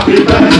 Happy tá. birthday.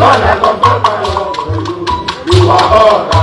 lọ́lẹ̀ lọ́gbọ́n náà lọ́wọ́ pẹ̀lú ìwà ọ̀rọ̀.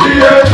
yeah.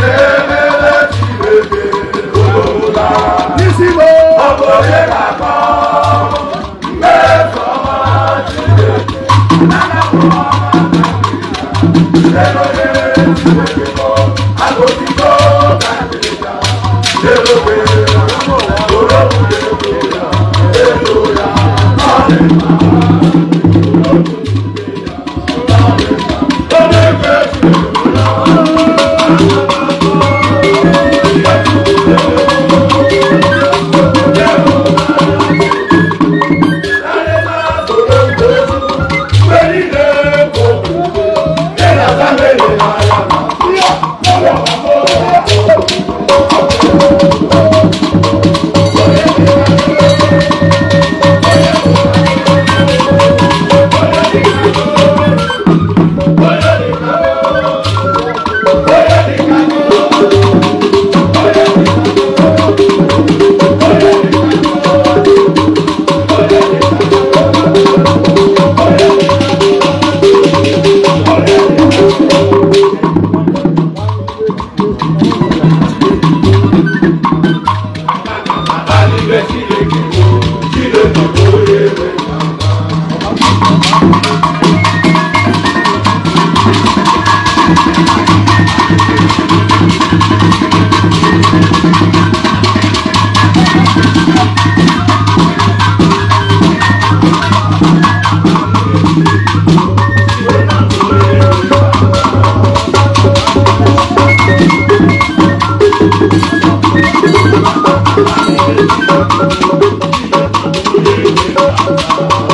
Thank you.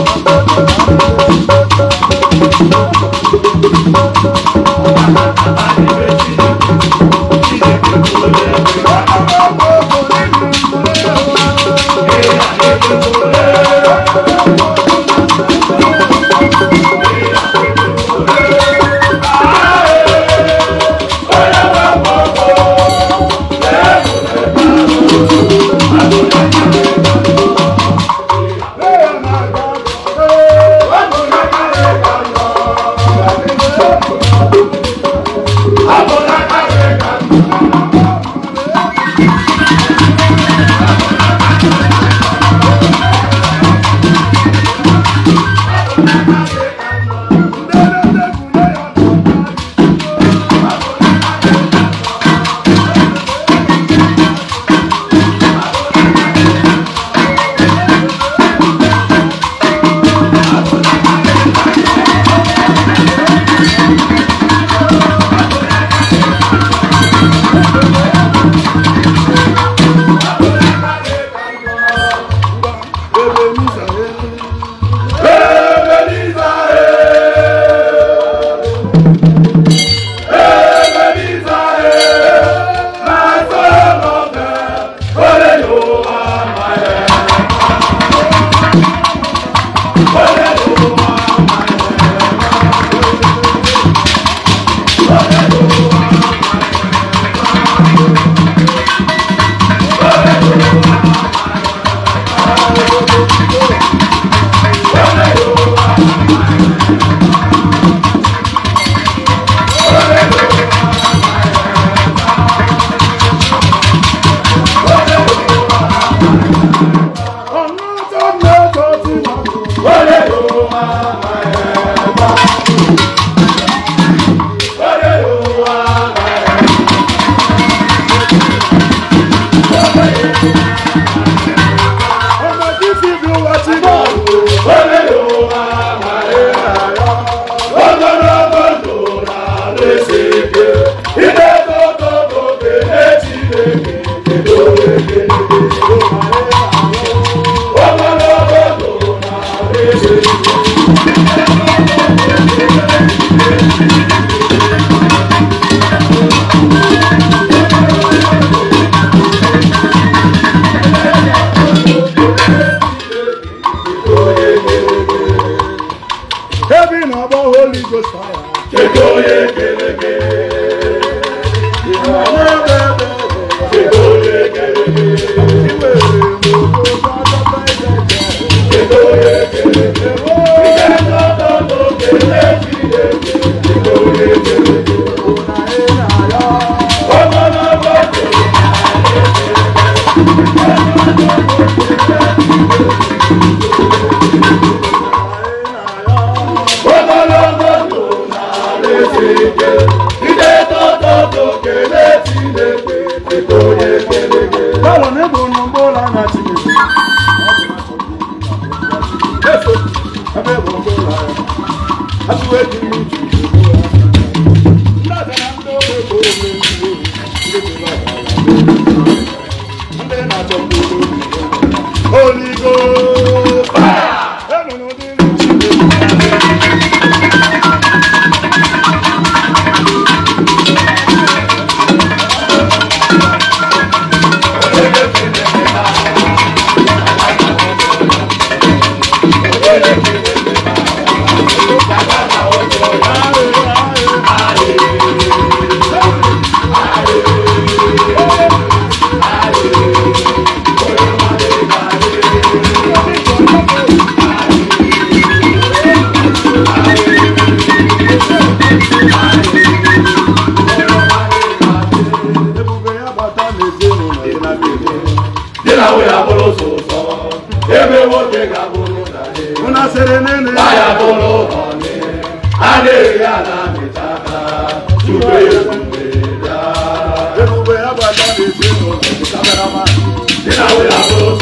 Bíblia e Deus. Kekoye keleke. sike ide toto tokele I'm etonye keleke báwo ni kò nù gbó lánàá chineke ebe gbogbo lánàá aṣọ èjì mi jù jù.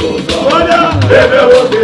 sọ. Kódà bébè wo ti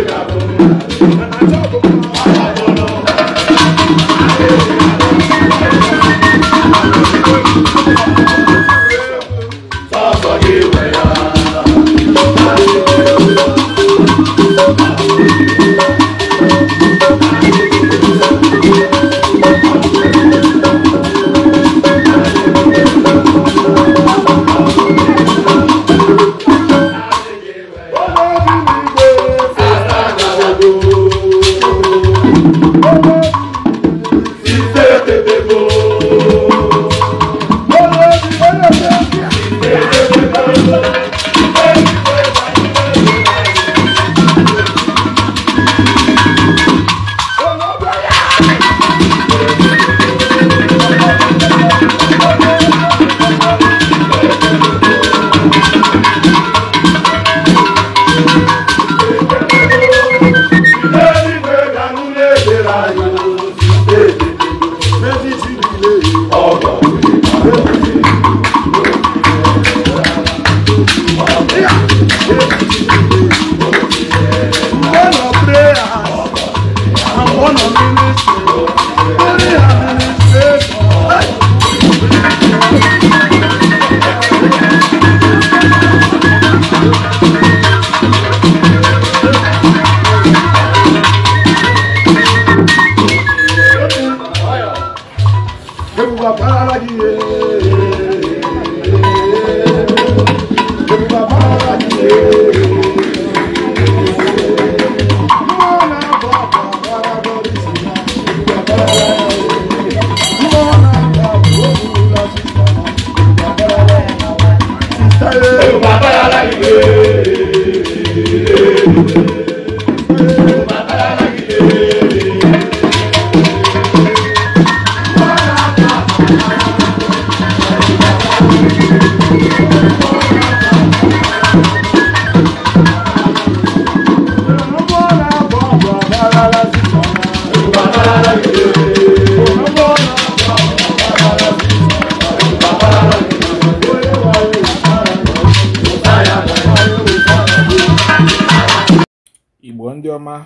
ọma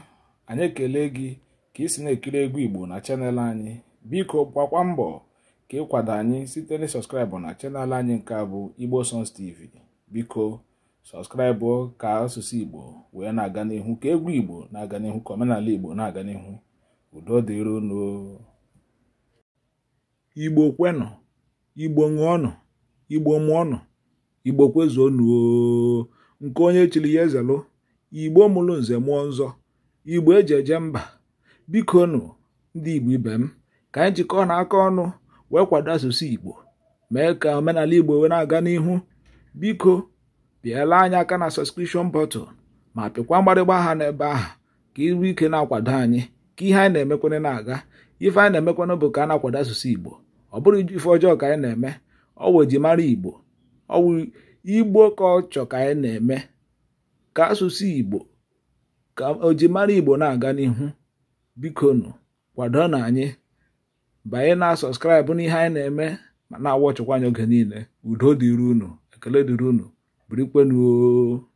anyị ekele gị ka ị si na-ekiri egwu igbo na chanel anyị biko gbakwa mbọ ka ịkwado anyị site na sọskraịbụ na chanel anyị nke a bụ igbo sons tv biko sọskraịbụ ka asụsụ igbo wee na-aga n'ihu ka egwu igbo na-aga n'ihu ka omenala igbo na-aga n'ihu udo dịrị unu igbo kwenụ igbo ṅụọnụ igbo mụọnụ igbo kwezuo nuo nke onye chiri ya ezelụ igbo mụrụ nze mụọ nzọ igbo eji eje mba biko nụ ndị igbo ibe m ka anyị jikọọ na aka ọnụ wee kwado asụsụ igbo mee ka omenala igbo wee na-aga n'ihu biko bịala anyị aka na sọskripshọn bọtụl ma pịkwa mgbarịgba aha n'ebe ahụ ka iru ike na-akwado anyị ka ihe anyị na-emekwana na-aga ife anyị na-emekwana bụ ka a na-akwado asụsụ igbo ọ bụrụ ife ọjọọ ka anyị na-eme ọ eji mara igbo ọ wụ igbo ka ọ chọ ka anyị na-eme ka asụsụ igbo ka ojimara igbo na-aga n'ihu biko nụ kwado na anyị banye na sọskraịbụ n'ihe anyị na-eme ma na-awọchịkwa anyị oge niile udo dịrị unu ekele dịrị unu birikwenuo